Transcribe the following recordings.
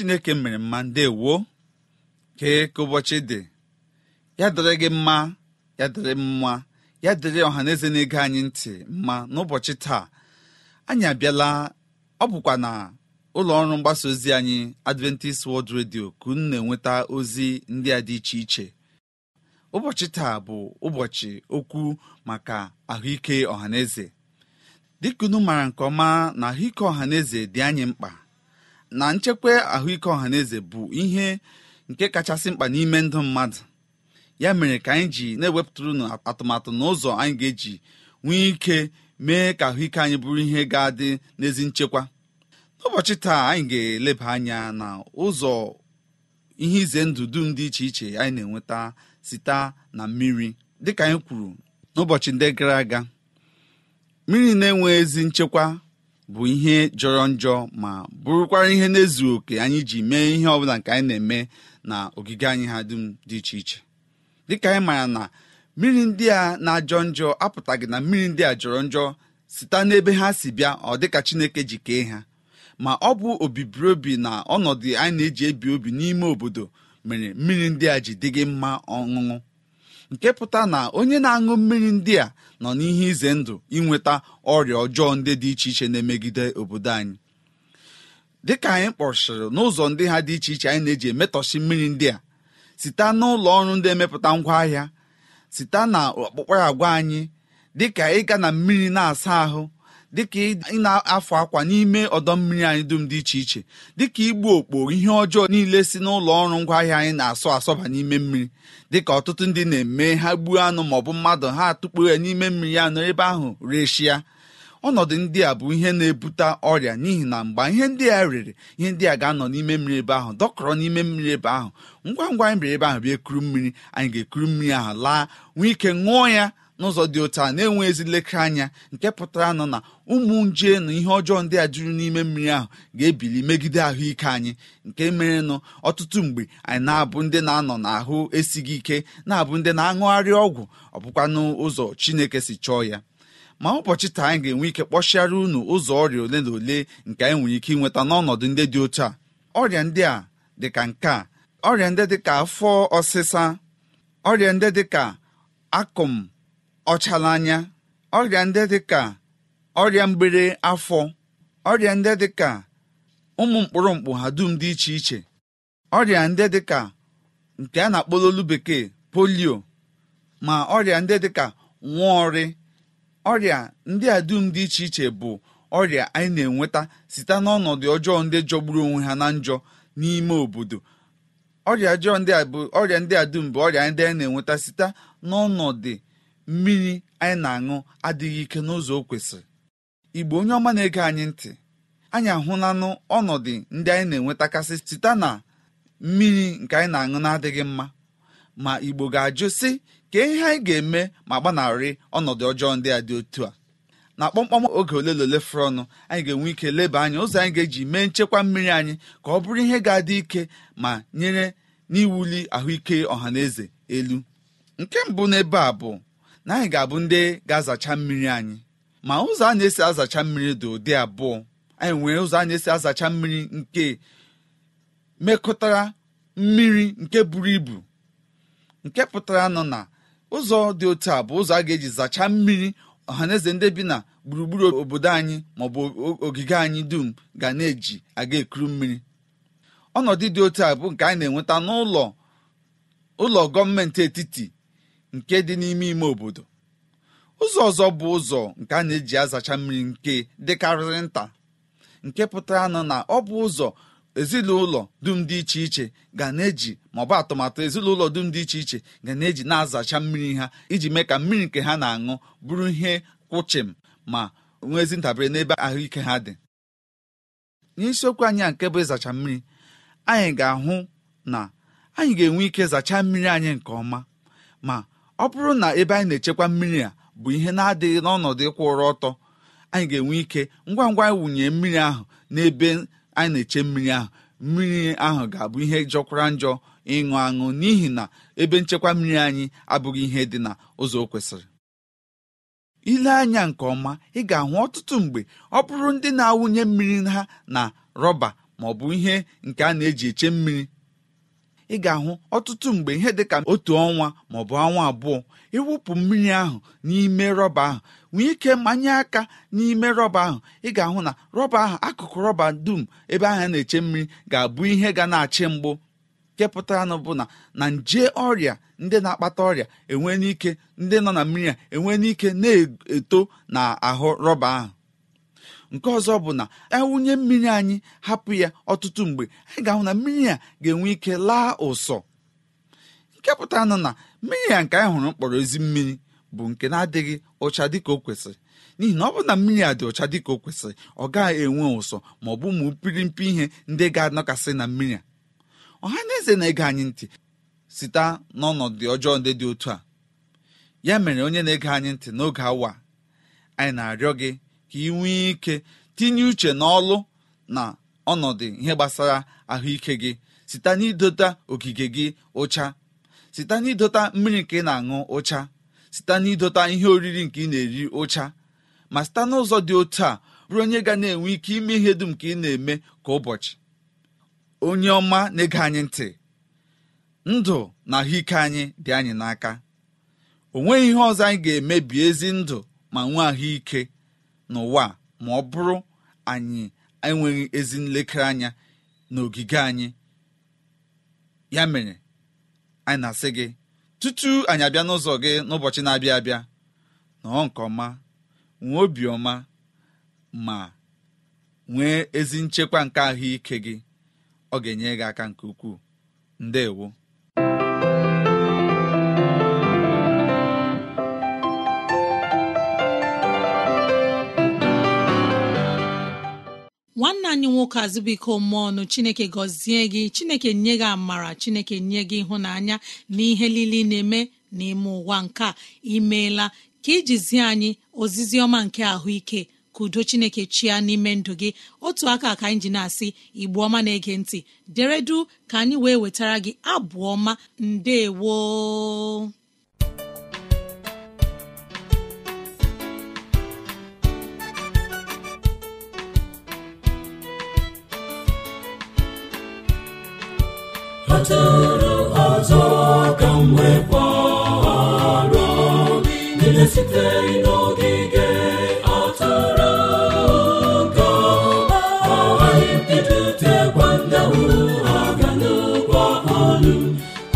chineke mere mma ndewoo kee ka ụbọchị dị ya dịrị gị mma ya dịrị mma ya dịrị ọha na eze ege anyị ntị mma n'ụbọchị taa anyị abịala ọ bụkwa na ụlọ ọrụ mgbasa ozi anyị adventist world radio ka unu na-enweta ozi ndị a dị iche iche ụbọchị taa bụ ụbọchị okwu maka ahụike ọhaneze dịka unu maara nke ọma na ahụike ọhaneze dị anyị mkpa na nchekwa ahụike ọhaneze bụ ihe nke kachasị mkpa n'ime ndụ mmadụ ya mere ka anyị ji na-ewepụtara unu atụmatụ na ụzọ anyị ga-eji nwee ike mee ka ahụike anyị bụrụ ihe ga-adị n'ezi nchekwa n'ụbọchị taa anyị ga-eleba anya na ụzọ ihe ize ndụ dum dị iche iche anyị na-enweta site na mmiri dịka anyị kwuru n'ụbọchị ndị gara aga mmiri na-enwe ezi nchekwa bụ ihe jọrọ njọ ma bụrụkwara ihe na-ezu oke anyị ji mee ihe ọbụla nke anyị na-eme na ogige anyị ha dum dị iche iche dịka anyị maara na mmiri ndị a na-ajọ njọ apụtaghị na mmiri ndị a jọrọ njọ site n'ebe ha si bịa ọ dịka Chineke ji kee ha ma ọ bụ obibiri na ọnọdụ anyị na-eji ebi obi n'ime obodo mere mmiri ndị a ji dịghị mma ọṅụṅụ nke pụta na onye na-aṅụ mmiri ndị a nọ n'ihe ize ndụ inweta ọrịa ọjọọ ndị dị iche iche na-emegide obodo anyị dịka anyị kpọchiri n'ụzọ ndị ha dị iche iche anyị na-eji emetọsi mmiri ndị a site n'ụlọ ọrụ ndị emepụta ngwaahịa site na ọkpụkpa agwa anyị dịka ịga na mmiri na-asa ahụ dịka ị na-afụ akwa n'ime ọdọ mmiri anyị dum dị iche iche dịka igbu okpo ihe ọjọọ niile si n'ụlọ ọrụ ngwa ahịa anyị na-asọ asọba n'ime mmiri dịka ọtụtụ ndị na-eme ha gbuo anụ maọbụ mmadụ ha atụkpo ya n'ime mmiri anụ ebe ahụ reshia ọnọdụ ndị a bụ ihe na-ebute ọrịa n'ihi na mgbe ihe ndị a rere ihe ndị a ga-anọ n'ime mmiri ebe ahụ dọkọrọ n'ime mmiri ebe ahụ ngwa ngwa anyị mere ebe ahụ bịa ekuru mmiri anyị ga-ekuru mmiri ahụ laa nwee ike ṅụọ ya n'ụzọ dị otu a na-enwe ezi nlekere anya nke pụtara nọ na ụmụ nje na ihe ọjọọ ndị a juru n'ime mmiri ahụ ga-ebili megide ahụike anyị nke mere nụ ọtụtụ mgbe anyị na-abụ ndị na-anọ n'ahụ esighị ike na-abụ ndị na-aṅụgharị ọgwụ ọ bụkwanụ ụzọ Chineke si chọọ ya ma ụbọchị taa anyị ga-enwe ike kpọchiara unu ụzọ ọrịa ole na ole nke anyị nwere ike ịnweta n'ọnọdụ ndị dị otu a ọrịa ndị a dịka nke ọrịa ndị afọ ọsịsa ọrịa ndị dịka akụm ọchalanya ọrịa ndị ka ọrịa mgbere afọ ọrịa ndị ka ụmụ mkpụrụ mkpụ ha dum dị iche iche ọrịa ndị dịka nke a na akpọlolu bekee polio ma ọrịa ndị dịka nwaọrị ọrịa ndị a dum dị iche iche bụ ọrịa anyị na-enweta site n'ọnọdụ ọjọọ ndị jọgburu onwe ha na njọ n'ime obodo ọrịa ọjọọ ndị a bụ ọrịa ndị a dum bụ ọrịa ndị anyị na-enweta site n'ọnọdụ mmiri anyị na-aṅụ adịghị ike n'ụzọ o kwesịrị igbo onye ọma na-ege anyị ntị anyị ahụlanụ ọnọdụ ndị anyị na-enwetakasị site na mmiri nke anyị na-aṅụ na-adịghị mma ma igbo ga-ajụ sị ka ihe anyị ga-eme ma gbanarị ọnọdụ ọjọọ ndị a dị otu a na kpọmkpọm oge ole na ole fụrụ ọnụ anyị ga-enwe ike leba anya ụzọ anyị ga-eji mee nchekwa mmiri anyị ka ọ bụrụ ihe ga-adị ike ma nyere n'iwuli ahụike ọha na eze elu nke mbụ n'ebe a bụ na anyị ga-abụ ndị ga-azacha mmiri anyị ma ụzọ a na-esi azacha mmiri dị ụdị abụọ anyị nwere ụzọ a na-esi azacha mmiri nke mekọtara mmiri nke buru ibu nke pụtara nọ na ụzọ dị otu a bụ ụzọ a ga-eji zacha mmiri ọhaneze ndị bi na gburugburu obodo anyị maọbụ ogige anyị dum ga na-eji aga ekuru mmiri ọnọdụ dị otu a bụ nke anyị na-enweta n'ụlọ ụlọ gọọmenti etiti nke dị n'ime ime obodo ụzọ ọzọ bụ ụzọ nke a na-eji azacha mmiri nke dịkarịrị nta nke pụtara nọ na ọ bụ ụzọ ezinụlọ dum dị iche iche ga na-eji maọbụ atụmatụ ezinụlọ dum dị iche iche ga na-eji na-azacha mmiri ha iji mee ka mmiri nke ha na-aṅụ bụrụ ihe kwụchịm ma nwee ezi ntabere n'ebe ahụike ha dị n'isiokwu anyị a nke bụ ịzacha mmiri anyị ga-ahụ na anyị ga-enwe ike zachaa mmiri anyị nke ọma ma ọ bụrụ na ebe anyị na-echekwa mmiri a bụ ihe na-adịghị n'ọnọdụ ụrụ ọtọ anyị ga-enwe ike ngwa ngwa anyị wụnye mmiri ahụ n'ebe anyị na-eche mmiri ahụ mmiri ahụ ga-abụ ihe jọkwara njọ ịṅụ aṅụ n'ihi na ebe nchekwa mmiri anyị abụghị ihe dị na ụzọ o kwesịrị ile anya nke ọma ị ga-ahụ ọtụtụ mgbe ọ bụrụ ndị na-awụnye mmiri ha na rọba ma ọ bụ ihe nke a na-eji eche mmiri ị ga-ahụ ọtụtụ mgbe ihe dị ka otu ọnwa maọbụ ọnwa abụọ ịwụpụ mmiri ahụ n'ime rọba ahụ nwee ike manye aka n'ime rọba ahụ ị ga-ahụ na rọba ahụ akụkụ rọba dum ebe ahụ na-eche mmiri ga-abụ ihe ga na-achị mgbu nke pụtara bụ na na nje ọrịa ndị na-akpata ọrịa enwe n'ike ndị nọ na mmiri a enwe n'ike na-eto na ahụ rọba ahụ nke ọzọ bụ na ewunye mmiri anyị hapụ ya ọtụtụ mgbe anyị ga-ahụ na mmiri a ga-enwe ike laa ụsọ nke pụtara nụ na mmiri a nke anyị hụrụ mkpọrọ ezi mmiri bụ nke na-adịghị ụcha dịka o kwesịrị n'ihi na ọ bụrụ na mmiri a dị ụcha dịka o kwesịrị ọ gaghị enwe ụsọ ma ọ bụ ụmụ mpirimpi ihe ndị ga-anọkasị na mmiri a ọha na eze na-ege anyị ntị site n'ọnọdụ ọjọọ ndị dị otu a ya mere onye na-ege anyị ntị n'oge awa anyị na-arịọ gị ka ị nwee ike tinye uche n'ọlụ na ọnọdụ ihe gbasara ahụike gị site n'idota ogige gị ụcha site n'idota mmiri nke ị na-aṅụ ụcha site n'idota ihe oriri nke ị na-eri ụcha ma site n'ụzọ dị otu a bụrụ onye ga na-enwe ike ime ihe dum nke ị na-eme ka ụbọchị onye ọma na-ege anyị ntị ndụ na ahụike anyị dị anyị n'aka o nweghị ihe ọzọ anyị ga emebi ezi ndụ ma nwee ahụike n'ụwa ma ọ bụrụ anyị enweghị ezi nlekere anya n'ogige anyị ya mere anyị na-asị gị tutu anyị abịa n'ụzọ gị n'ụbọchị na-abịa abịa nọọ nke ọma nwee obi ọma ma nwee ezi nchekwa nke ahụike gị ọ ga-enye gị aka nke ukwuu ndewo nwanne anyị nwoke azụbụiko mmụọ ọnụ chineke gọzie gị chineke nye gị amara chineke nye gị ịhụnanya na ihe lili na-eme n'ime ụwa nke a imeela ka ijizie anyị ozizi ọma nke ahụike ka udo chineke chia n'ime ndụ gị otu aka ka anyị ji na-asị igbu ọma na-ege ntị deredu ka anyị wee wetara gị abụ ọma ndewo kpatara ọzọ ka m nwekwara niile site n'ogige atụrụ ga agaghị mbidotekwa ndanwu ha ga n'ụgbọ ọlụ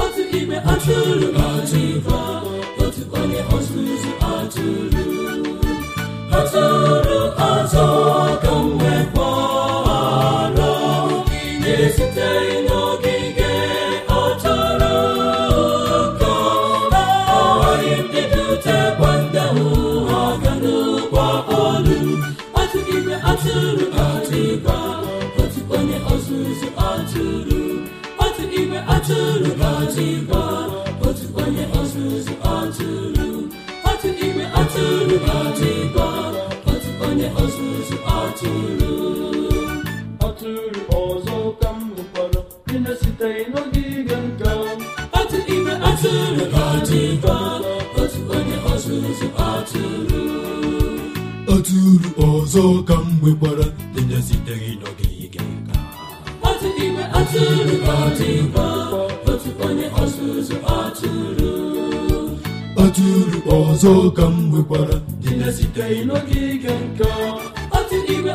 otu ime atụrụ ọzọ ka m nwekwara otu otu onye ọzọ ka otu igwe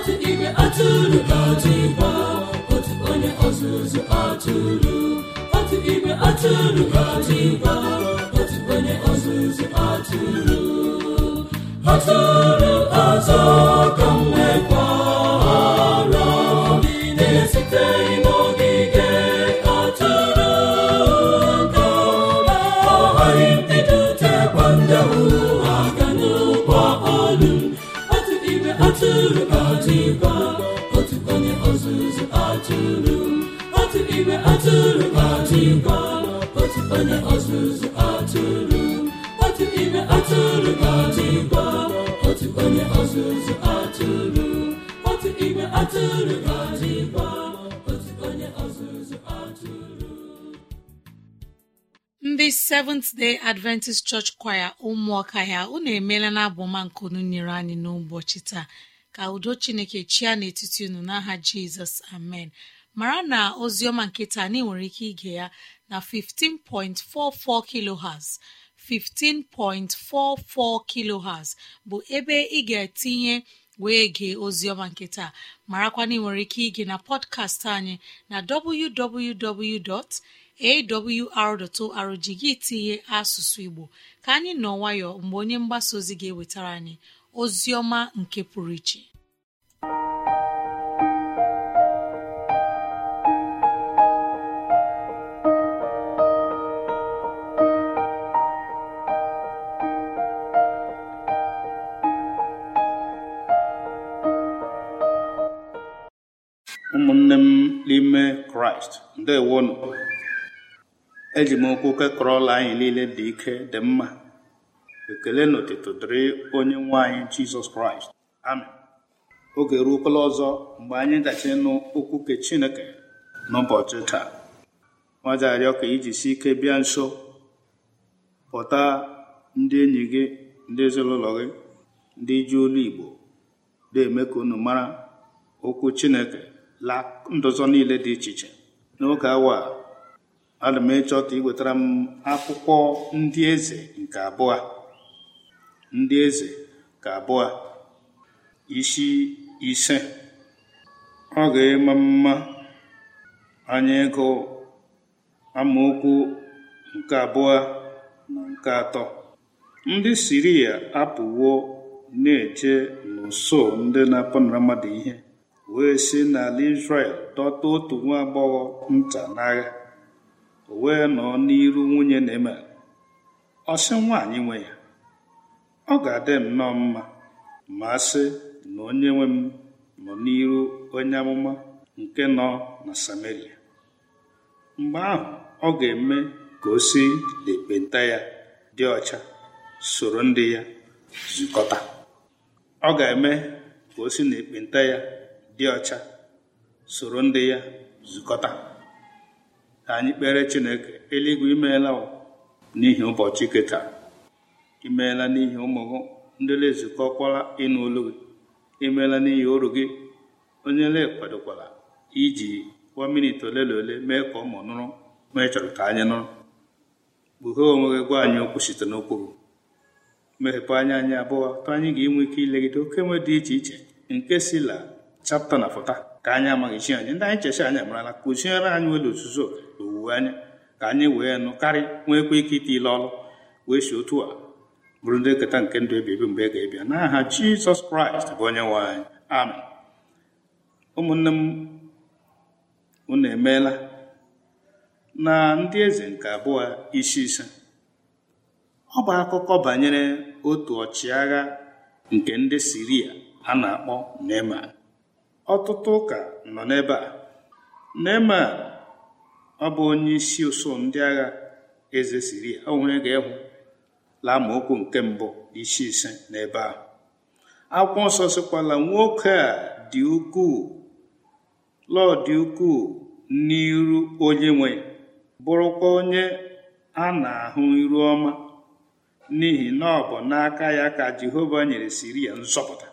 ka igwe atụrụ ka otu onye ọzụzụ atụrụ onye ọzụzụ atụrụ atụrụ azụ ka m na-esiteghị n'ogige atụrụ ndị ga otu ime atụrụ otu seventh day adventist church Choir ụmụọka ya unu emeela na abụma nkunu nyere anyị n'ụbọchị taa ka udo chineke chia n'etiti unu n'aha jizọs amen mara na Ozioma nkịta anyị nwere ike ige ya na 15.44 kilohertz 15.44 kilohertz bụ ebe ị ga-etinye wee gee Ozioma nkịta marakwana ị nwere ike ige na pọdkastị anyị na www. awr.org gị tinye asụsụ igbo ka anyị nọ nwayọ mgbe onye mgbasa ozi ga-ewetara anyị ozi ọma nke pụrụ iche ụmụnne m n'ime kraịst ndewonu eji m okwu kekọrọ ụlọ anyị niile dị ike dị mma ekele na otutu dịrị onye nwe anyị jizọs kraịst amị oge ruokwala ọzọ mgbe anyị gachi ịnụ okwu ke chineke n'ụbọchị taa nwajarịọ ka iji si ike bịa nso pụta ndị enyi gị ndị ezinụlọ gị ndị ji olu igbo na-eme ka unu mara okwu chineke la ndụzọ niile dị iche iche n'oge awa ana m echọta iwetara m akwụkwọ ndị eze nke abụọ ndị eze ka abụọ isi ise ọ ga-eme mma anya ịgụ amaokwu nke abụọ na nke atọ ndị siria apụwo na-eche n'ụsọ ndị na-apụnara mmadụ ihe wee si n'ala Izrel dọta otu nwa agbọghọ nta n'agha o wee nọọ n'iru nwunye na-eme ọsị sị nwaanyị nwe ya ọ ga-adị nnọọ mma ma sị na onye nwe m nọ n'iru onye amụma nke nọ na Samaria mgbe ahụ ọ ga-eme ka o si ya dị ọcha soro ndị ya zukọta ọ ga-eme ka o si na ekpenta ya dị ọcha soro ndị ya zukọta ka anyị kpere chineke eluigwe imeela n'ihi ụbọchị keta imeela n'ihi ụmụ gị ndị lezukọkwala ịnụ olu gị imeela n'ihi oru gị onye lekwadokwara iji kwa miniti ole na ole mee ka ụmụ nụrụ ma ị chọrọ ka anyị nụrụ kpughee onwe gị gwa anyị okwu site n'okwu gị mmepepe anya anyị abụọ tụ anyị ga-enwe ike ilegide oke nwe dị iche iche nke si la chapta na fọta ka anyị amaghị chi anyị ndị anyị checha anyị amarala kụziere anyị nwere ozuzo na owuwe anya ka anyị wee nụ karị nweekwa ike ite ile ọrụ wee si otu a bụrụ ndị nketa nke ndụ ebibi mgbe ga-ebịa n'aha jizọs kraịst bụ onye nwe anyị ụmụnne m unu emeela na ndị eze nke abụọ isi ise ọ bụ akụkọ banyere otu ọchịagha nke ndị siria a na-akpọ Neman ọtụtụ ụka nọ n'ebe a Neeman ọ bụ onye isi ụsọ ndị agha eze siri onwe ga-ehụ laa nke mbụ isi ise n'ebe ahụ akwụkwọ nsọ sịkwala nwoke a dị ukwuu lọọ dị ukwuu n'iru onye nwe bụrụkwa onye a na-ahụ iru ọma n'ihi na ọ bụ n'aka ya ka Jehova nyere siri ya nzọpụta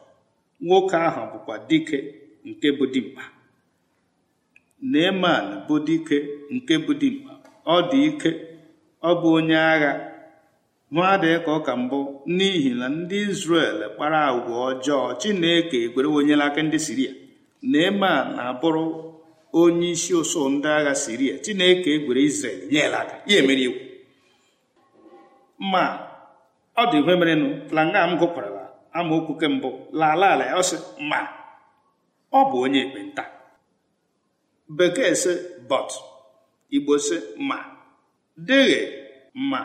nwoke ahụ bụkwa dike nke bụ dimkpa Neeman bụ dike nke bụ dimkpa ọ dị ike ọ bụ onye agha adịghị ka ọka mbụ n'ihi na ndị Izrel kpara agwa ọjọọ Chineke ekwere onyela aka ndị Siria Neeman na-abụrụ onye isi ụsụ ndị agha Siria Chineke egwere Izrel nyela aka ya emere iwu ma ọ dị ihe merenụ planga m gụkwarala amaokwu kembụ lala ala ya ọsị ma ọ bụ onye ekpenta bekee sị "Bọt igbo sị ma dịghị ma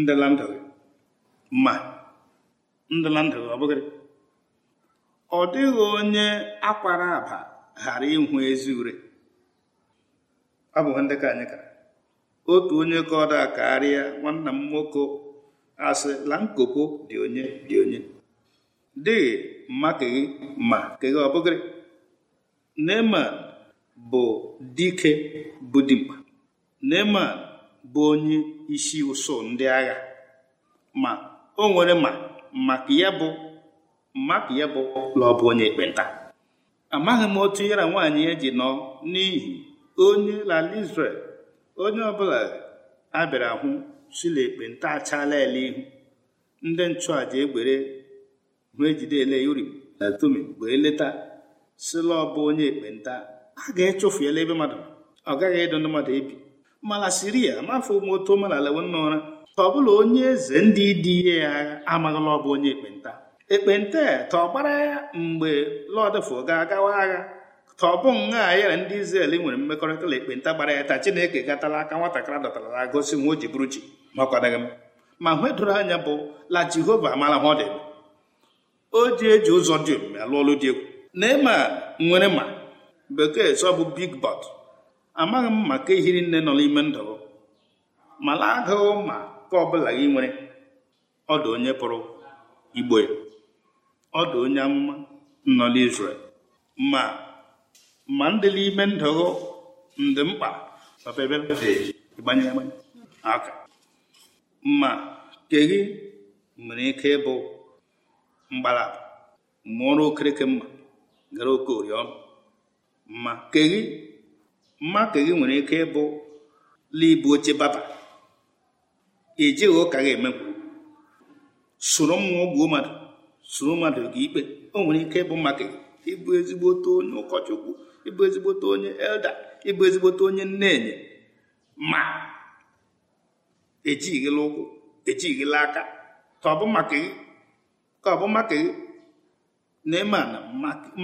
ndịlandụghị ma ndịlandụghị ọ bụghị ọ dịghị onye akwara aba ghara ịhụ ezi ure abụghị ndị ka anyị ka otu onye ka ọ da karịa nwanna m nwoke asị la nkopo dị onye dị onye dịghị mma gị ma ka gị ọ bụgịrị Neeman bụ dike bụ dimkpa Neeman bụ onye isi ụsọ ndị agha ma o nwere ma maka ya bụ maka ya bụ na bụ onye ekpenta amaghị m otu ya nwanyị nwaanyị ya ji nọ n'ihi onye lala isrel onye ọbụla a bịara hụ si na ekpenta achala ele ihu ndị nchụàja egbere hụ ejidele uri na eh, tumi wee leta sịla ọbụ onye ekpenta a ga-echụfuela ebe mmadụ ọ gaghị ịdụ ndị mmadụ ebi mala siria mafọ moto mala lewenna ụra ka ọ bụla onye eze ndị dị ihe ya agha amaghịla ọbụ onye ekpenta ekpenta ta e, ọ gbara ya mgbe lọdfụ ga-agawa agha ka ọ bụ nha ya na ndị Izrel e nwere mmekọrịta na ekpenta gbara ya taa Chineke gatala aka nwatakịrị dọtara gosi nwa o ji bụrụ ma ọ m ma hụ anya bụ la Jehova amala ha ọ o ji eji ụzọ dị omimi alụ ọlụ dị egwu na ịma nwere ma bekee sọ bụ big bot amaghị m maka ihiri nne nọ n'ime ndụ mala agụụ ma ka ọbụla gị nwere ọdụ onye pụrụ igbo ọdụ onye amụma nọ n'Izrel ma ma ndị n'ime ndụ ndị mkpa ịgbanye ma gị nwere ike ịbụ mgbala mụrụ okereke mma gara oke oriọna mma keghi mma keghi nwere ike ịbụ libu oche baba ejighị ụka gị emekwu soro mmụọ gbuo mmadụ soro mmadụ gị ikpe o nwere ike ịbụ maka keghi, ịbụ ezigbote onye ụkọchukwu ịbụ ezigbote onye elda ịbụ ezigbote onye nnenye ma ejighịla ụkwụ ejighịla aka ka ọ bụ maka gị ka ọ bụ maka na ịma na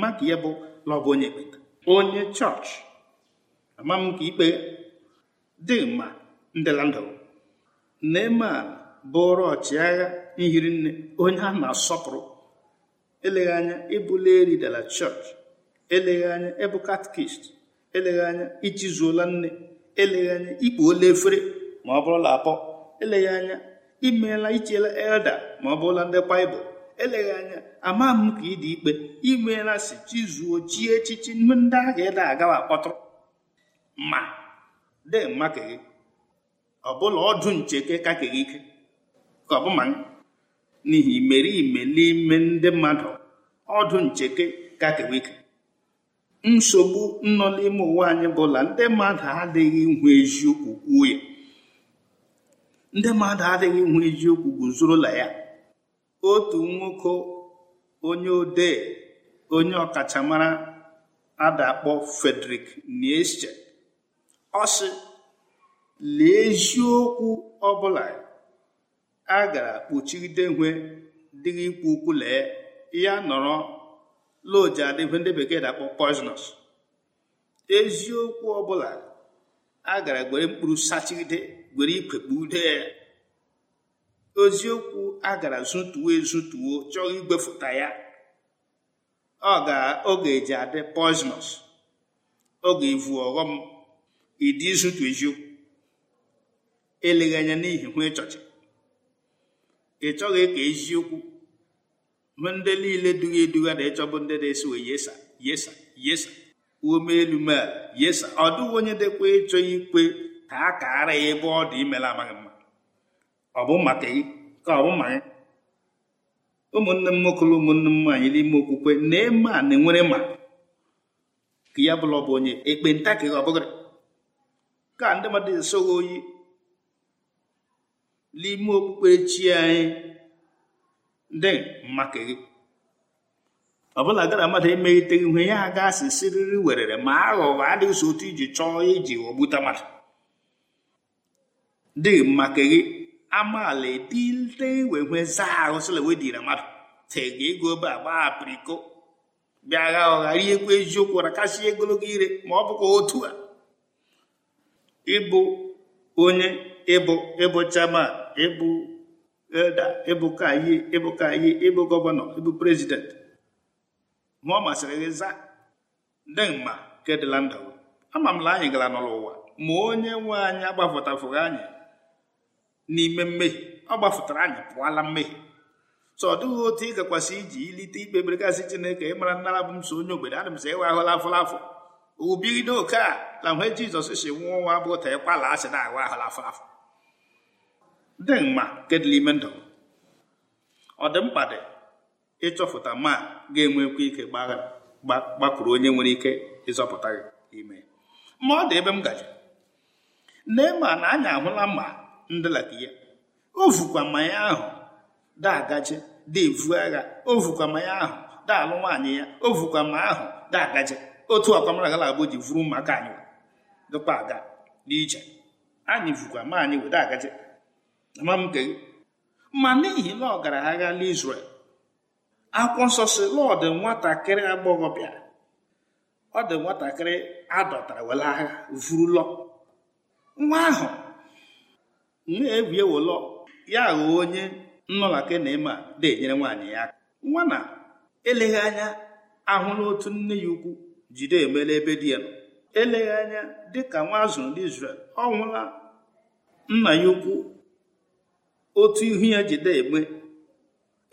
maka ya bụ lọbụ onye ekpenta onye chọọchị ama m ka ikpe dị ma ndịlandụ Neeman bụrụ ọchịagha nhiri nne onye a na-asọpụrụ eleghị anya ịbụla eridala chọọchị eleghị anya ịbụ katkist eleghị anya ichizuola nne eleghị anya ikpuola efere ma ọ bụrụla apọ eleghị anya imeela ichela elda ma ọ bụrụla ndị baịbụl eleghị anya ama m ka ị dị ikpe imeela si chizuo chi echichi ndị ahụ ịda agawa akpọtụrụ ma dị mma ka gị bụla ọdụ ncheke ka ka gị ike ka ọ bụ ma n'ihi imerime n'ime ndị mmadụ ọdụ ncheke ka ka ike nsogbu nọ n'ime ụwa anyị bụla ndị mmadụ adịghị ihu eziokwu kwuo ya ndị mmadụ adịghị ihu eziokwu la ya otu nwoke onye odee onye ọkachamara adakpọ Frederick Nietzsche ọ sị lee eziokwu ọbụla a gara kpuchigide nwe dịghị ikwu ukwu lee ya nọrọ loji adịbe ndị bekee dakpọ eziokwu ọbụla a gara gwere mkpụrụ sachigide gwere ikwe kpugide ya oziokwu a gara zụtuo ezụtuo chọọ igwefụta ya ọ ga-oge eji adị poisonous oge ivu ọghọm ịdị ịzụtu eziokwu eleghị anya n'ihi hụ ịchọchị ị chọghị ka eziokwu hụ ndị niile dughị eduga na ịchọbụ ndị na-esi wee yesa yesa yesa ume elu mel yesa ọ dịghị onye dịkwa ịchọ ikwe ka a kaara ya ebe ọ dị imela amaghị ọ bụ ka ọ bụ ụmụnne m nwoke ụmụnne m nwaanyị n'ime okwukwe na-eme a na-enwere ma ka ya bụla ọ bụ onye ekpenta ka ọ ka ndị mmadụ esoghị oyi n'ime okpukpe chi anyị ndị maka gị ọ bụla gara mmadụ emegheteghị ihe ya aga asị siriri werere ma aghụghọ adịghị so otu iji chọọ iji ghọgbuta mmadụ dịghị maka gị amaala edile wewee zaa ahụ sịla mmadụ tega ego ebe a gbaa apiriko bịa gha ụgha riekwu eziokwu rakasịa ogologo ire ma ọ bụkwa otu a ịbụ onye ịbụ ịbụ chairman ịbụ elda ịbụ kayi ịbụ kayi ịbụ gọvanọ ịbụ prezident ma ọ masịrị gị zaa dị mma kedịla ndụ ama m na anyị gara n'ụlọ ụwa ma onye nwe anyị agbafụtafụghị anyị n'ime mmehie ọ gbafụtara anyị pụọla mmehie so ọ dịghị otu ị gakwasị iji ilite ikpe beregasị chineke ịmara nnara bụ m so onye ogbenye m sị ịwa ahụla afụla afụ ubido oke a na mgbe jizọs si nwụọ nwa bụ ta ịkwala asị na awa ahụla afọ afụ dị mma nke dị n'ime ndụ ọ dị mkpa dị ịchọpụta ma ga-enwekwa ike gbakwuru onye nwere ike ịzọpụta gị ime ma ọ dị ebe m gaji nne ma na anyị ahụla mma ndịlata ya o vukwa mmanya ahụ dagaje devu agha O vukwa mmanya ahụ daalụ nwaanyị ya O vukwa ma ahụ dagaje otu na-agbo ji vuru maka anyị dụkwa aga n'ije anyị vukwa ma anyị wede agaje ama m ma n'ihi na ọ gara agha n'Izrel akwụkwọ nsọ si lọdụ nwatakịrị agbọghọ bịara ọ dị nwatakịrị adọtara were agha vurulọ nwa ahụ nne ewu ewolọ ya ghọọ onye nnọlake na ịma na-enyere nwaanyị ya aka nwa na eleghị anya ahụla otu nne ya ukwu jide emela ebe di ya nọ eleghị anya dịka nwa azụrụ ndị Izrel ọ hụla nna ya ukwu otu ihu ya jide eme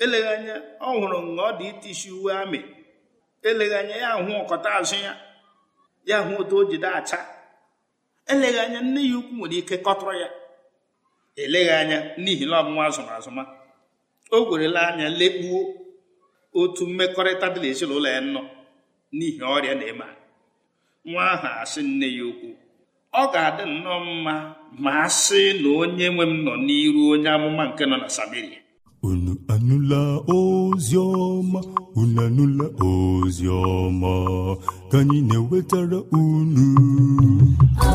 eleghị anya ọ hụrụ na ọ dị itisi uwe amị eleghị anya ya hụ ọkọta azụ ya ya hụ otu o jide acha eleghị anya nne ya ukwu nwere ike kọtụrụ ya eleghị anya n'ihi na ọmụnwa azụma azụma o gwerela anya lekpuo otu mmekọrịta dị n'ezinụlọ ya nọ n'ihi ọrịa na-eme nwa ahụ asị nne ya okwu ọ ga-adị nnọọ mma ma a sị na onye nwe m nọ n'iru onye amụma nke nọ na Samaria unu anụla ozi ọma unu anụla ozi ọma ka anyị na-ewetara unu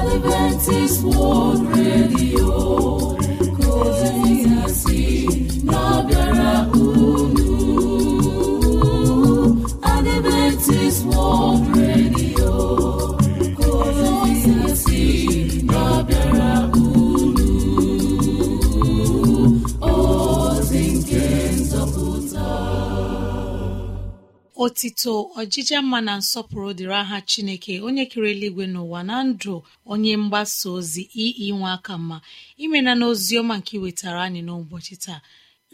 Adventist World Radio otito ọjịja mma na nsọpụrụ dịrị aha chineke onye kere eluigwe n'ụwa na ndụ onye mgbasa ozi nwa aka mma imena na ọma nke iwetara anyị n'ụbọchị taa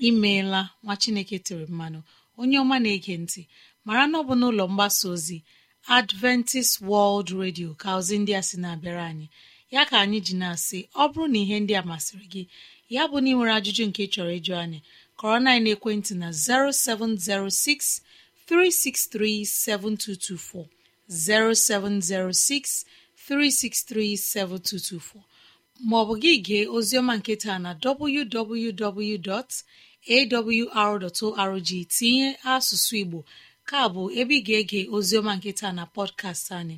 imeela nwa chineke tere mmanụ onye ọma na-ege ntị mara na ọ bụ n'ụlọ mgbasa ozi adventist world radio ka ozi ndị a sị na-abịara anyị ya ka anyị ji na-asị ọ bụrụ na ihe ndị a masịrị gị ya bụ na ị nwere ajụjụ nke chọrọ ịjụ anyị kọrọ na ekwentị na 0706 363-7224, 0706 363-7224 maọbụ gị gee oziọma nketa na www.awr.org tinye asụsụ Igbo ka bụ ebe ị ga-ege oziọma nketa na pọdkast anyị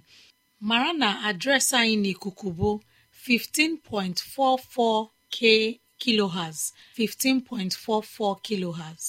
mara na adresa anyị n'ikuku bụ 15.44 k kilohertz 15.44 kilohertz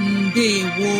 ndewo